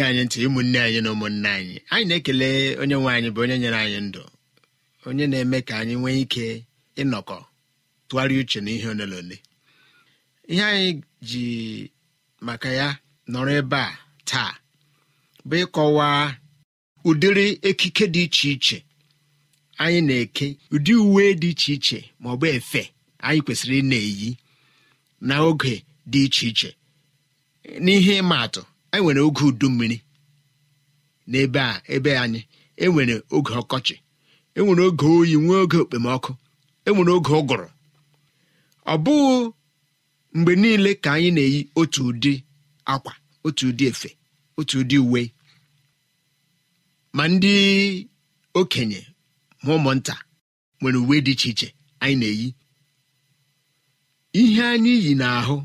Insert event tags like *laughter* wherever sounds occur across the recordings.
na anyị ntị ụmụnne anyị na ụmụnne anyị anyị na-ekele onye nwe anyị bụ onye nyere anyị ndụ onye na-eme ka anyị nwee ike ịnọkọ tụgharịa uche na ihe ole ihe anyị ji maka ya nọrọ ebe a taa bụ ịkọwa ụdịrị ekike dị iche iche anyị na-eke ụdị uwe dị iche iche ma ọ bụ efe anyị kwesịrị ị na-eyi na oge dị iche iche n'ihe ịma atụ anyị e nwere oge udu mmiri n'ebe a ebe anyị enwere oge ọkọchị enwere oge oyi nwee oge okpomọkụ enwere oge ụgụrụ ọ bụghị mgbe niile ka anyị na-eyi otu ụdị akwa otu ụdị efe otu ụdị uwe ma ndị okenye ma ụmụnta nwere uwe dị iche iche anyị na-eyi ihe anyị yi n'ahụ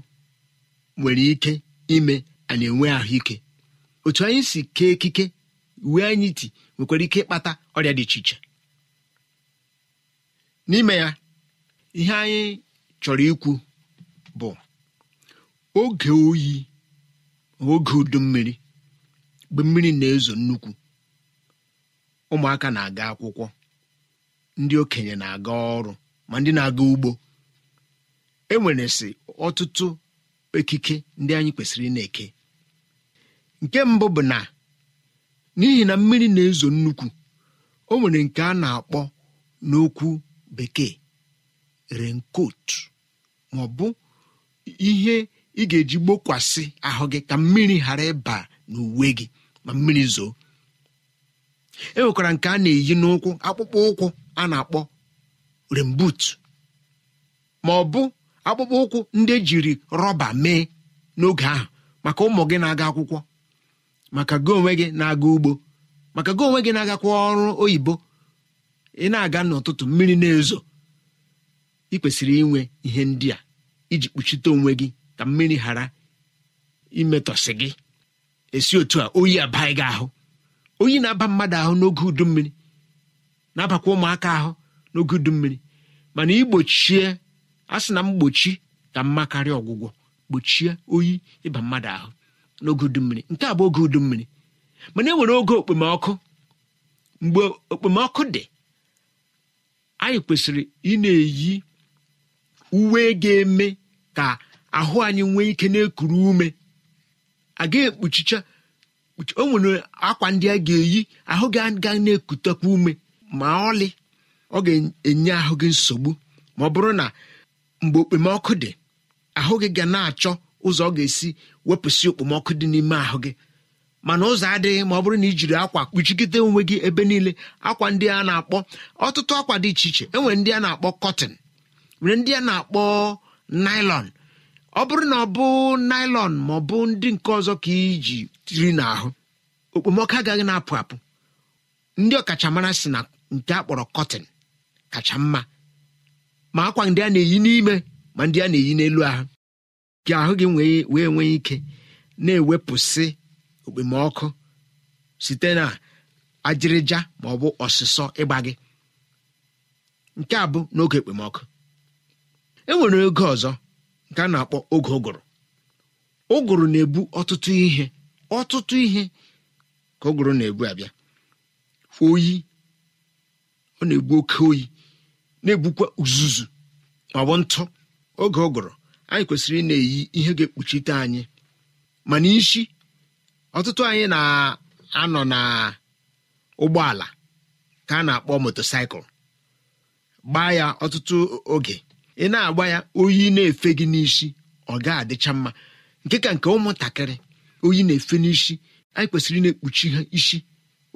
nwere ike ime anyị enwe ahụike otu anyị si kee ekike uwe anyị ti nwekwara ike ịkpata ọrịa dị iche iche n'ime ya ihe anyị chọrọ ikwu bụ oge oyi oge udu mmiri mgbe mmiri na-ezo nnukwu ụmụaka na-aga akwụkwọ ndị okenye na-aga ọrụ ma ndị na-aga ugbo e nwere sị ọtụtụ ekike ndị anyị kwesịrị na-eke nke mbụ bụ na n'ihi na mmiri na-ezo nnukwu o nwere nke a na-akpọ n'okwu bekee renkot ma ọ bụ ihe ị ga-eji gbokwasị ahụ gị ka mmiri ghara ịba n'uwe gị ma mmiri zoo e nwekwara nke a na-eyi n'ụkwụ akpụkpọ ụkwụ a na-akpọ rembut ma ọ bụ akpụkpọ ụkwụ ndị ejiri rọba mee n'oge ahụ maka ụmụ gị na-aga akwụkwọ maka gị onwe gị na-aga ugbo maka gị onwe gị na-agakwa ọrụ oyibo ị na-aga n'ụtụtụ mmiri na-ezo ị kwesịrị inwe ihe ndị a iji kpuchite onwe gị ka mmiri ghara imetọsị gị esi otu a oyi abaghị gị ahụ oyi na-aba mmadụ ahụ n'oge udu mmiri na-abakwa ụmụaka ahụ n'oge udu mmiri mana igbochie a sị na mgbochi ka mma karịa ọgwụgwọ gbochie oyi ịba mmadụ ahụ n'oge udummiri nke a bụ oge udummiri mana e nwere oge okpomọkụ mgbe okpomọkụ dị anyị kwesịrị ị na-eyi uwe ga-eme ka ahụ anyị nwee ike na-ekuru ume agaghị ekpuchicha o nwere akwa ndị a ga-eyi ahụ gị aga na-ekutekwa ume ma ọlị ọ ga-enye ahụ gị nsogbu ma ọ bụrụ na mgbe okpomọkụ dị ahụ gị ga na-achọ ụzọ ọ ga-esi wepụsị okpomọkụ dị n'ime ahụ gị mana ụzọ adịghị ma ọ bụrụ na ị jiri akwa kpuchigide onwe gị ebe niile akwa ndị a na-akpọ ọtụtụ akwa dị iche iche enwere ndị a na-akpọ kọtin nwere ndị a na-akpọ naịlọn ọ bụrụ na ọ bụ naịlọn ma ọ bụ ndị nke ọzọ ka iji tiri n'ahụ okpomọkụ agaghị na-apụ apụ ndị ọkachamara si na nke a kpọrọ kọtin kacha mma ma akwa ndị a na-eyi n'ime ma ndị a na-eyi n'elu ahụ Gị ahụ gị wee nwee ike na-ewepụsị okpomọkụ site na ajịrịja ma ọ bụ ọsịsọ ịgba gị nke a bụ n'oge okpomọkụ. e nwere oge ọzọ nke a na-akpọ oge ụgụrụ ụgụrụ na-ebu ọtụtụ ihe ọtụtụ ihe ka ụgụrụ na-ebu abịa oyi ọ na-egbu oke oyi na-egbukwa uzuzu ma ọ bụ ntụ oge ụgụrụ anyị kwesịrị na-eyi ihe ga-ekpuchite anyị mana isi ọtụtụ anyị na-anọ na ụgbọala ka a na-akpọ motosaịkụl gbaa ya ọtụtụ oge ị na-agba ya oyi na-efe gị n'isi ọ ga-adịcha mma nke ka nke ụmụntakịrị oyi na-efe n'isi anyị kwesịrị na-ekpuchi ha isi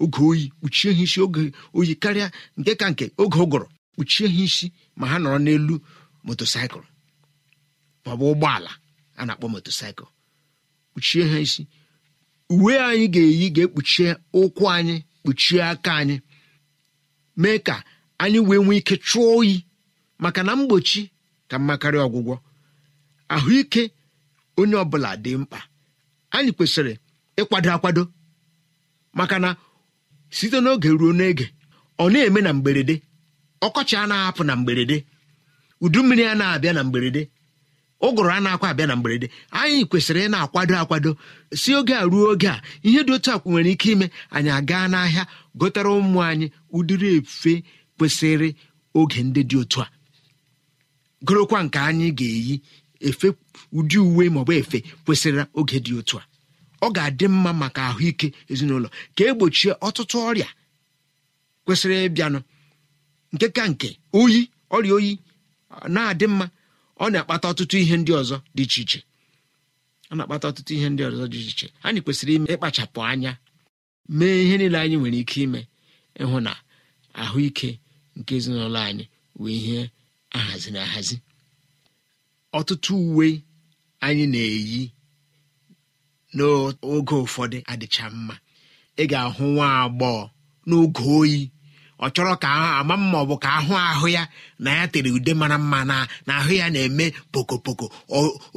oge oyi kpuchie ha isi oge oyi karịa nke ka nke oge ụgụrụ kpuchie ha isi ma ha nọrọ n'elu motosaịkụl maọbụ ụgbọala a na-akpọ motosaịkụl kpuchie ha isi uwe anyị ga-eyi ga-ekpuchie ụkwụ anyị kpuchie aka anyị mee ka anyị wee nwee ike chụọ oyi maka na mgbochi ka mma karịa ọgwụgwọ ahụike onye ọbụla dị mkpa anyị kwesịrị ịkwado akwado maka na site n'oge ruo n'ege ọ na-eme na mgberede ọkọchị a na-ahapụ na mgberede udu mmiri a na-abịa na mgberede ụgụrụ a na-akwa abịa na mgberede anyị kwesịrị ị na-akwado akwado si oge a ruo oge a ihe dị otu akwụ nwere ike ime anyị agaa n'ahịa gotara ụmụ anyị ụdịrị efe kwesịrị oge ndị dị otu a gorokwa nke anyị ga-eyi efe ụdị uwe maọbụ efe kwesịrị oge dị otu a ọ ga-adị mma maka ahụike ezinụlọ ka egbochie ọtụtụ ọrịa kwesịrị ịbịanụ nke ka nke oyi ọrịa oyi na-adị mma ọ na-akpata ọtụtụ ihe ndị ọzọ dị iche iche ọ na-akpata ọtụtụ ihe ndị ọzọ dị iche iche anyị kwesịrị ime ịkpachapụ anya mee ihe niile anyị nwere ike ime ịhụ na ahụike nke ezinụlọ anyị wee ihe ahazi na ahazi ọtụtụ uwe anyị na-eyi n'oge ụfọdụ adịcha mma ị ga-ahụ nwa agbọghọ n'oge oyi ọ chọrọ ka ama mma ọ bụ ka ahụ ahụ ya na ya tere ude mara mma na na ahụ ya na-eme pokopoko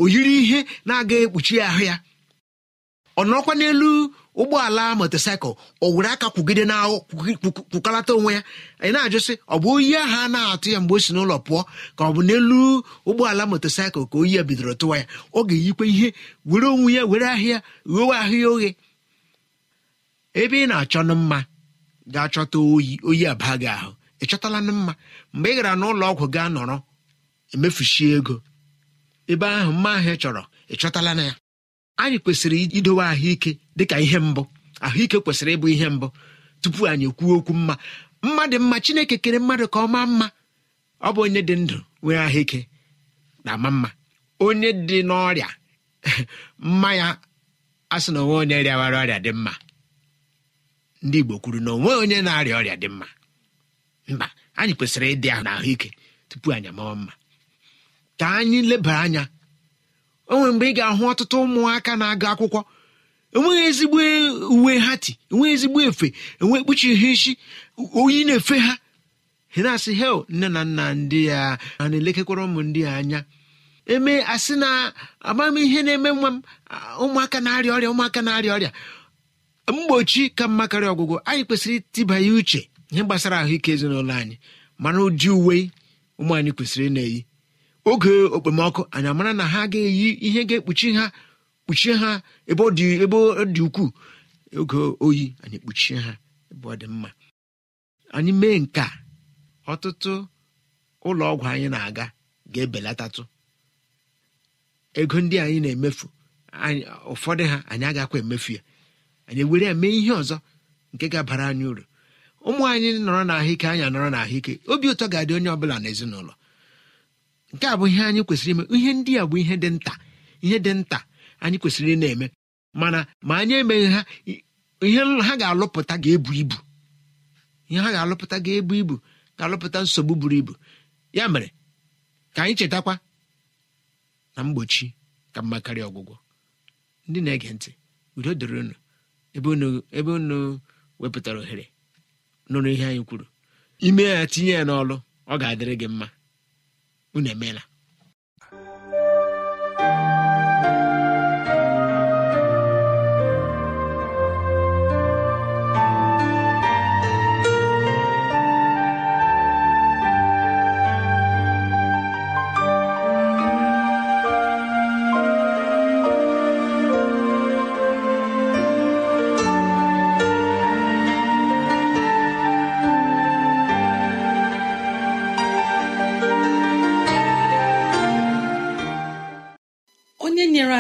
o yiri ihe na-aga ekpuchi ahụ ya ọ nọkwa n'elu ụgbọala motosaịkụl o were aka kwugide na kwukalata onwe ya anyị na-ajụsị ọ bụ oyi ahụ a na-atụ ya mgbe o si n'ụlọ pụọ ka ọ bụ n'elu ụgbọala motosaịkụl ka oyi ya bidoro tụwa ya ọ ga-eyikwa ihe were onwe ya were ahịa ghewe ahụ ya oghe ebe ị na-achọ nụ mma ga chọta oyi oyi aba gị ahụ ị chọtala mma mgbe ị gara n'ụlọ ọgwụ gaa nọrọ emefuchie ego ebe ahụ mma ahụ ị chọrọ ị chọtala na ya anyị kwesịrị idowe ahụike dịka ihe mbụ ahụike kwesịrị ịbụ ihe mbụ tupu anyị ekwuo okwu mma mma dị mma chineke kere mmadụ ka ọ maa mma ọ bụ onye dị ndụ nwee ahụike na-ama mma onye dị n'ọrịa *laughs* mma ya a na onwe onye rịawara ọrịa dị mma ndị igbo kwuru na onwe onye na-arịa ọrịa dị mma mba anyị kwesịrị ịdị ahụ na ahụike tupu anyị amawa mma ka anyị leba anya o nwere mgbe ị ga-ahụ ọtụtụ ụmụaka na-agụ akwụkwọ enweghị ezigbo uwe ha ti enweghị ezigbo efe enwe ekpuchighị isi oyi na-efe ha na-asị hel nne na nna ndị ya a na-elekekwara ụmụ ndị ya anya eme asị na ihe na-eme nwa m ụmụaka na-arịa ọrịa ụmụaka na-arịa ọrịa mgbochi ka mma karịa ọgwụgwọ anyị kwesịrị itibanye uche ihe gbasara ahụike ezinụlọ anyị mana ụdị uwe ụmụ anyị kwesịrị na-eyi oge okpomọkụ anyị amara na ha ga-eyi ihe ga-ekpuchi ha kpuchie ha ebe ọ dị ukwuu oge oyi anyị kpuchie ha ebe ọ dị mma anyị mee nke a ọtụtụ ụlọ ọgwụ anyị na-aga ga-ebelatatụ ego ndị anyị na-emefu ụfọdụ ha anyị agakwa emefu ya anyị were ya mee ihe ọzọ nke ga-abara anyị uru ụmụ anyị nọrọ n'ahụike anyị nọrọ n'ahụike obi ụtọ ga-adị onye ọ bụla n'ezinụlọ nke a bụ ihe anyị kwesịrị ime ihe ndị a bụ ihe dị nta ihe dị nta anyị kwesịrị ị na-eme mana ma anyị emeghị ha ihe ha ga-alụpụta ga-ebu ibu ihe ha ga-alụpụta ga-ebu ibu ga-alụpụta nsogbu buru ibu ya mere ka anyị chetakwa na mgbochi ka mma karịa ọgwụgwọ ndị na-ege ntị udo dịrị unu ebe unu wepụtara ohere nụrụ ihe anyị kwuru ime ya tinye ya n'ọlụ ọ ga-adịrị gị mma unu emeela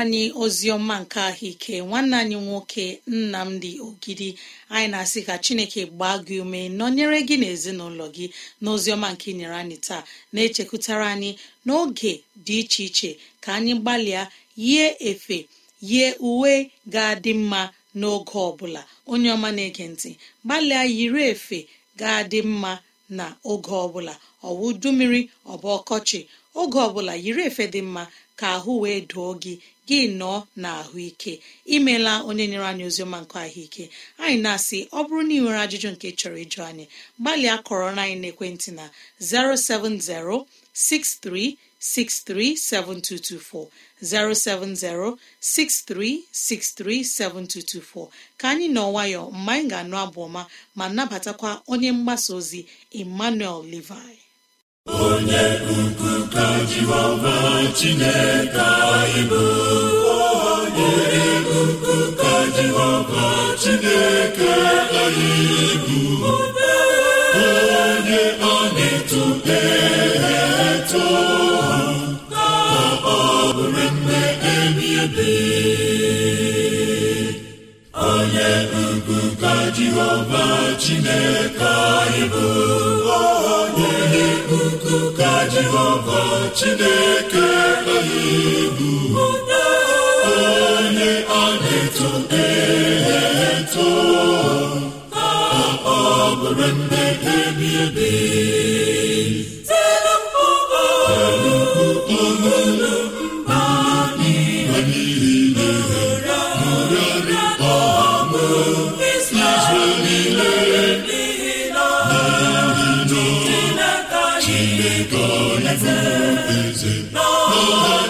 anyị ozi ọma nke ahụike nwanne anyị nwoke nnamdi ogidi anyị na-asị ka chineke gbaa gị ume nọnyere gị na ezinụlọ gị na ọma nke nyere anyị taa na-echekwutara anyị n'oge dị iche iche ka anyị gbalịa yie efe yie uwe ga-adị mma n'oge ọ bụla onye ọma na-ege ntị gbalịa yiri efe ga-adị mma na oge ọbụla ọwa udu mmiri ọbụ ọkọchị oge ọbụla yiri efe dị mma ka ahụ wee doo gị gị nọọ na ahụike imela onye nyere anyị oziọma nke ahụike anyị na-asị ọ bụrụ na ị nwere ajụjụ nke chọrọ ịjụ anyị gbalịa kọrọ na anyị n'ekwentị na 07063637224 7224 ka anyị nọ nwayọ mgbe anyị ga-anụ abụ ọma ma nabatakwa onye mgbasa ozi Emmanuel Levi onye ukwu ka jehova chineke anyị bụ onye ukwu ka jehova chineke anyị bụ onye a na eto ka ọ bụrụ nne ebi ebi onye ukwu ka jehova chineke anyị bụ onye ka jehova chineke anyị egwu onye a na-eto e eto ka ọ bụrụ nne ebi ebi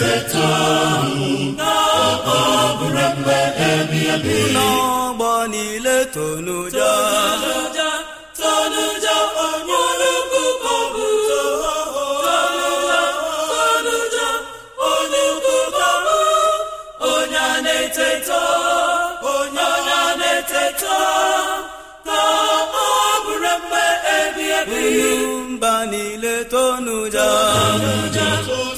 na-eteta ọbụrụ mgbe ebibi n'ọgbọ niile tonuja tonuja onye na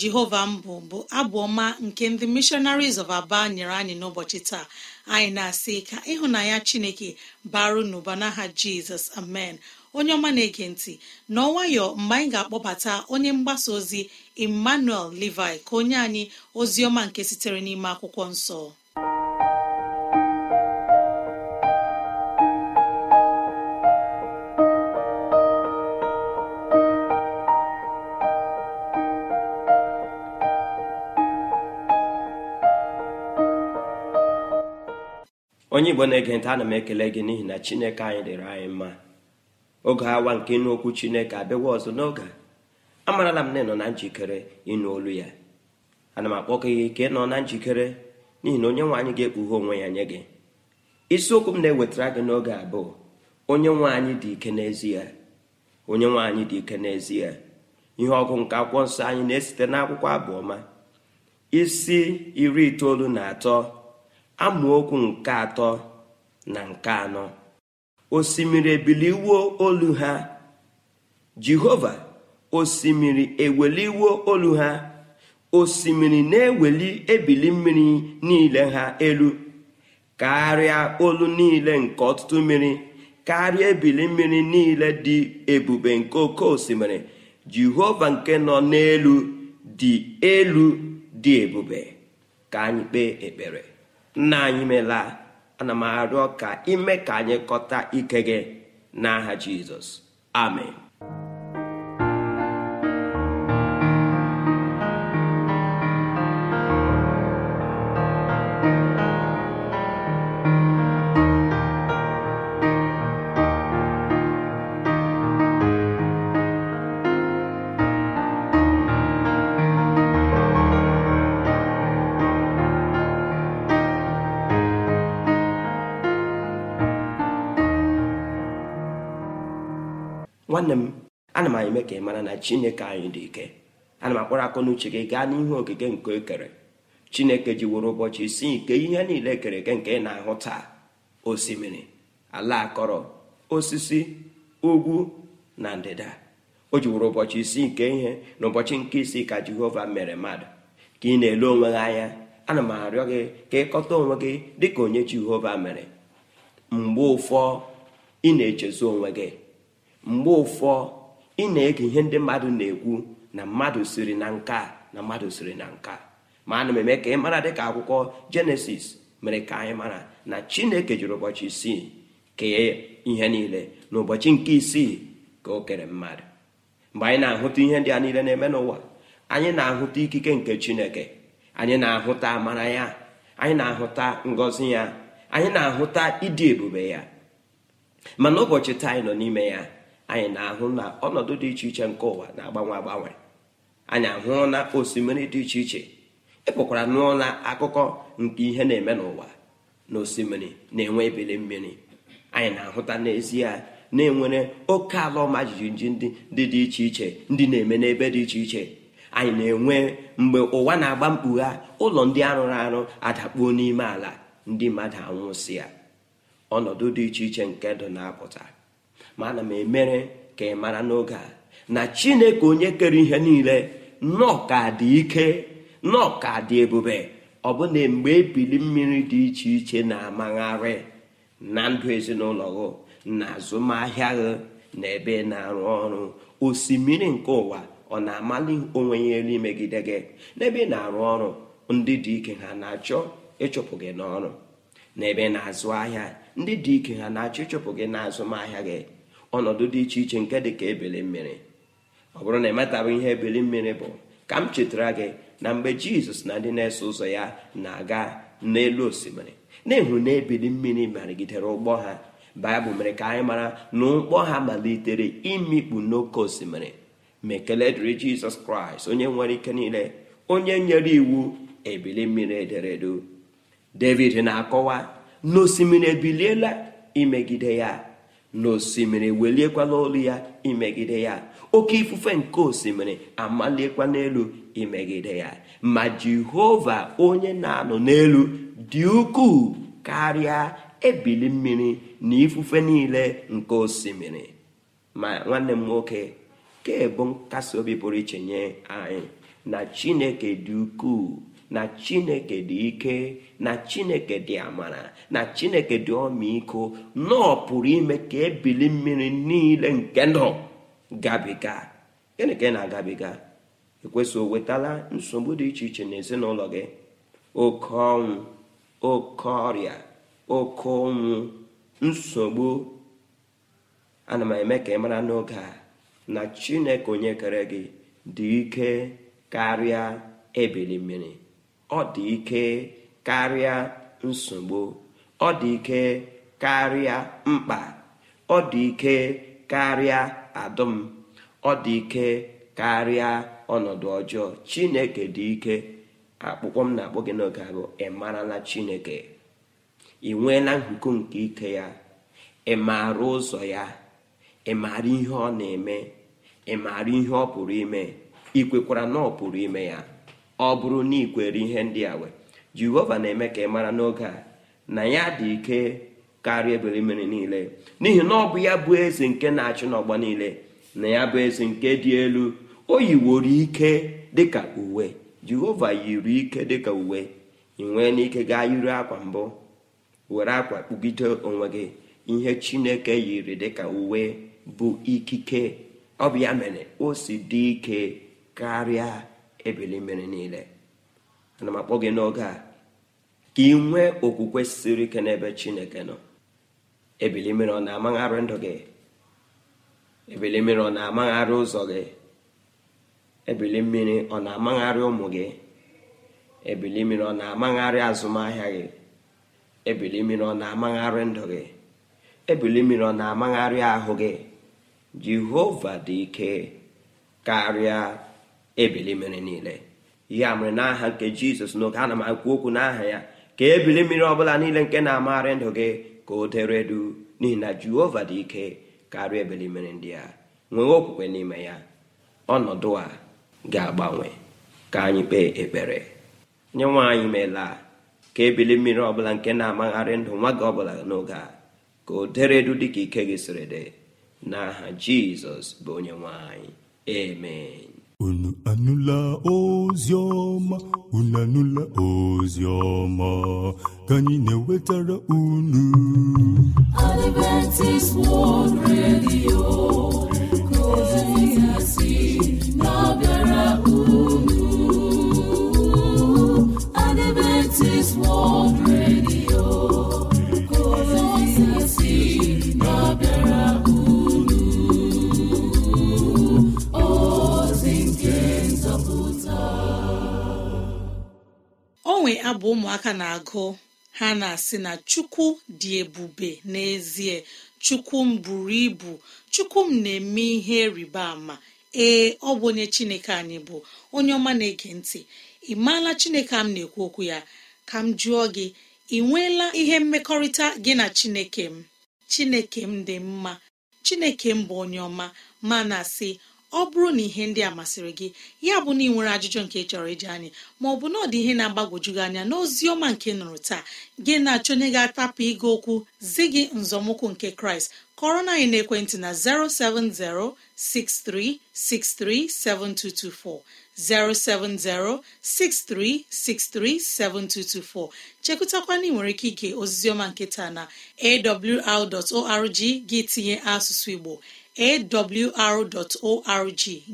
jehova mbụ bụ abụ ọma nke ndị missionaries of aba nyere anyị n'ụbọchị taa anyị na-asị ka ya chineke baru n'ụba n'aha jizọs amen onye ọma na-ege ntị nwayọ mgbe anyị ga-akpọbata onye mgbasa ozi emmanuel levi ka onye anyị ozi ọma nke sitere n'ime akwụkwọ nsọ onye igbo na-ege ntị ana m ekele gị n'ihi na chineke anyị dịrị anyị mma oge awa nke ịnụ okwu chineke abịawa ọzọ n'oge amarala m na ịnọ na njikere ịnụ olu ya ana m akpọkọ gị ka nọ na njikere n'ihi na onye nwe anyị ga-ekpughe onwe ya nye gị isiokwu m na-ewetara gị n'oge abụọ onye nwe anyị dị ike n'ezie onye nwe anyị dị ike n'ezie ihe ọgụ nke akwụkwọ nsọ anyị na-esite n'akwụkwọ abụọma isi iri itoolu na atọ amaokwu nke atọ na nke anọ osimiri ebiliwo olu ha jehova osimiri eweliwo olu ha osimiri na-eweli ebili mmiri niile ha elu karịa olu niile nke ọtụtụ mmiri karịa ebili mmiri niile dị ebube nke oke osimiri jehova nke nọ n'elu dị elu dị ebube ka anyị kpee ekpere nna anyị meela ana m arịọ ka ime ka anyị kọta ike gị n'aha jizọs amen nwanne m ana m eme ka ị mara na chineke anyị dị ike ana m akpọrọ akọ n'uche gị gaa n'ihu okike nke ekere chineke ji were ụbọchị isi nke ihe niile ekere eke nke ị na-ahụ taa osimiri ala akọrọ osisi ugwu na ndịda o ji ụbọchị isi nke ihe na ụbọchị nke isi ka jehova mere mmadụ ka ị na-ele onwe gị anya ana m arịọ gị ka ịkọta onwe gị dị ka onye jehova mere mgbe ụfọ ị na echezu onwe gị mgbe ụfọ ị na-ege ihe ndị mmadụ na-ekwu na mmadụ siri na nka na mmadụ siri na nka ma ana m eme ka ị mara dịka akwụkwọ jenesis mere ka anyị mara na chineke jiri ụbọchị isii kee ihe niile na ụbọchị nke isii ka o kere mmadụ mgbe anyị na-ahụta ihe ndị a niile na-eme n'ụwa anyị na-ahụta ikike nke chineke anyị na-ahụta amara ya anyị na-ahụta ngọzi ya anyị na-ahụta ịdị ebube ya mana ụbọchị taa nọ n'ime ya anyị na-ahụ na ọnọdụ dị iche iche nke ụwa na-agbanwe agbanwe anyị ahụrụ osimiri dị iche iche ịpụkwara e nụọ akụkọ nke ihe na-eme n'ụwa na osimiri na-enwe ebili mmiri anyị na-ahụta n'ezie na-enwere oke ala ọma jijiji ndị dị dị iche iche ndị na-eme n'ebe dị iche iche anyị na-enwe mgbe ụwa na-agba mkpugha ụlọ ndị arụrụ arụ adakpuo n'ime ala ndị mmadụ anwụsị ya ọnọdụ dị iche iche nke ndụ na-apụta ma ana m emere ka ị mara n'oge a na chineke onye kere ihe niile nnọọ ka dị ike nnọọ ka dị ebube ọ bụ na mgbe ebili mmiri dị iche iche na-amagharị na ndụ ezinụlọ gị na azụmahịa gị na ebe na-arụ ọrụ osimiri nke ụwa ọ na-amali onwe ya elu imegide gị n'ebe ị na-arụ ọrụ ndị dị ike ha na-achọ ịchụpụ gị n'ọrụ n'ebe na-azụ ahịa ndị dị ike ha na-achọ ịchụpụ gị n'azụmahịa gị ọnọdụ dị iche iche nke dị ka ebili mmiri ọ bụrụ na emetabụ ihe ebili mmiri bụ ka m chetara gị na mgbe jizọs na ndị na-eso ụzọ ya na-aga n'elu osimiri na-ehụ na ebili mmiri marigidere ụgbọ ha baịbụl mere ka anyị mara na ụgbọ ha malitere imikpu n'oke osimiri ma dịrị jizọs kraịst onye nwere ike niile onye nyere iwu ebili mmiri ederede. david na-akọwa na osimiri ebiliela imegide ya n'osimiri weliekwala olu ya imegide ya oke ifufe nke osimiri amaliekwala n'elu imegide ya ma jehova onye na-anọ n'elu dị ukwuu karịa ebili mmiri na ifufe niile nke osimiri ma nwanne m nwoke kebụ nkasi obi pụrụ iche nye anyị na chineke dị ukwuu na chineke dị ike na chineke dị amara na chineke dị ọmịiko nọọ pụrụ ime ka ebili mmiri niile nke nọ gabiga gịnị na-agabiga ekwesị o wetala nsogbu dị iche iche n'ezinụlọ gị oke ọnwụ oke ọrịa oke ọnwụ nsogbu ana m eme ka ị mara n'oge a na chineke onye kere gị dị ike karịa ebili mmiri ọ dị ike karịa nsogbu ọ dị ike karịa mkpa ọ dị ike karịa adụm ọ dị ike karịa ọnọdụ ọjọọ chineke dị ike akpụkpọ m na-akpọ gị n'oge abụ ị marala chineke ị nweela nhuko nke ike ya ị maara ụzọ ya ị maara ihe ọ na-eme ị maara ihe ọ pụrụ ime ị kwekwara na ọ pụrụ ime ya ọ bụrụ na ikwere ihe ndị a wee jehova na-eme ka ị mara n'oge a na ya dị ike karịa ebere mmiri niile n'ihi na ọ bụ ya bụ eze nke na-achị n'ọgba niile na ya bụ eze nke dị elu o yiworo ike dịka uwe jehova yiri ike dịka uwe ị nwee n'ike gaa yiri akwa mbụ were akwa kpugide onwe gị ihe chineke yiri dịka uwe bụ ikike ọ bụ mere o si dị ike karịa ebili mmiri niile ana m akpọ gị n'oge a ka ị nwee okwukwe siri ike n'ebe chineke nọ ebili mmiri ọ na-amagharị ndụ gị ebili mmiri ọ na-amagharị ụzọ gị ebili mmiri ọ na-amagharị ụmụ gị ebili mmiri ọ na-amagharị azụmahịa gị ebili mmiri ọ na-amagharị ndụ gị ebili mmiri ọ na-amagharị ahụ gị jehova dị ike karịa ebili mmiri niile a mere n'aha nke jizọs n'oge ana m akwu okwu n'aha ya ka ebili mmiri ọbụla niile nke na-amagharị ndụ gị ka o dere du n'ihi na jehova dị ike karịa ebili mmiri ndị a nwee okwukwe n'ime ya ọnọdụ a ga-agbanwe ka anyị kpee ekpere nye nwanyị meela ka ebili mmiri ọbụla nke na-amagharị ndụ nwa gị ọbụla n'oge a ka o deredu dịka ike gị siri dị n'aha jizọs bụ onye nwanyị. anyị onu anụla ozi ọma unu anụla ozi ọma ka anyị na-ewetara unu Adventist World Radio ka na-abịara unu Adventist World Radio mgbanwe abụ ụmụaka na-agụ ha na-asị na chukwu dị ebube n'ezie chukwu m buru ibu chukwu m na-eme ihe rịba ama ee ọ bụ onye chineke anyị bụ onye ọma na-ege ntị ị maala chineke m na-ekwu okwu ya ka m jụọ gị ị nweela ihe mmekọrịta gị na chineke m chineke m dị mma chineke m bụ onye ọma ma na-asị ọ bụrụ na ihe ndị a masịrị gị ya bụ na ị nwere ajụjụ nke chọrọ iji anyị ma ọ bụ na ọ dị ihe na-agbagwoju gị anya n'ozi ọma nke nụrụ taa gị na-achọnye gị atapụ ịga okwu zi gị nzọmụkwụ nke kraịst kọrọ na anyị n'ekwentị na 07063637224 07063637224 chekụtakwana ị nwere ike ige ozizioma nke taa na awr.org gị tinye asụsụ igbo awr.org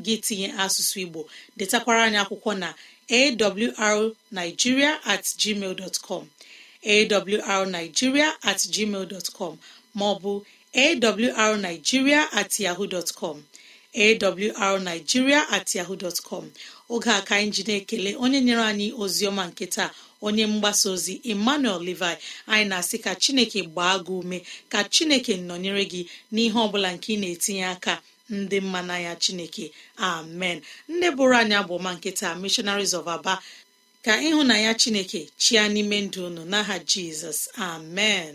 gị tinye asụsụ igbo detakwara anyị akwụkwọ na awrnigeria at gmail dot com awrnigeria at gmail dot com maọbụ awrnigeria at yahoo dot com awrnigeria at yahoo dot com oge a ka anyị ji na-ekele onye nyere anyị ozi ọma nke taa onye mgbasa ozi emmanuel levi anyị na-asị ka chineke gbaa gị ume ka chineke nọnyere gị n'ihe ọbụla nke ị na-etinye aka ndị mma n'anya chineke amen ndị bụrụ anyị abụọma nkịta missionaries of aba ka ịhụ na ya chineke chia n'ime ndụ unu n'aha jizọs amen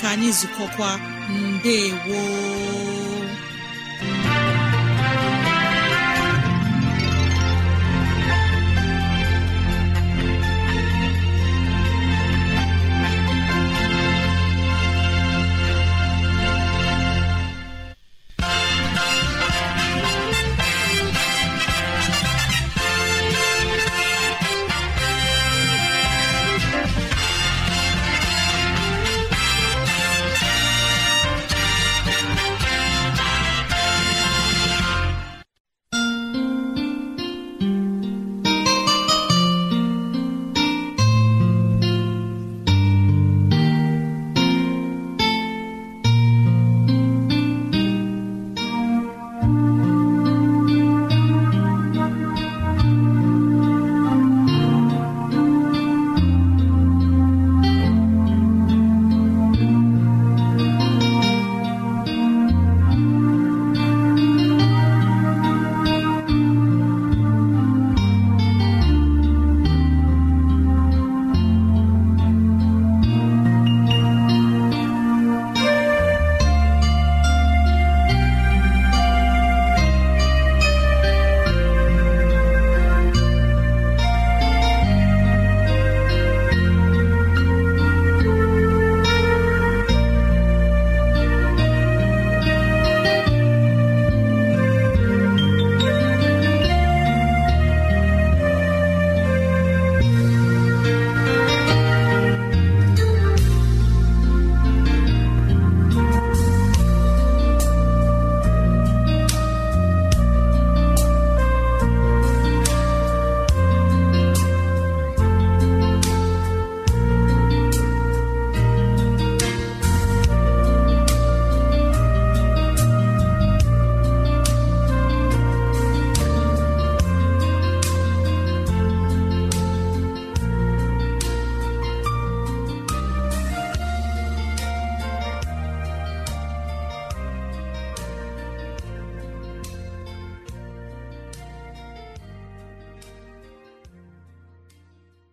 ka anyị zụkọkwa mbe gboo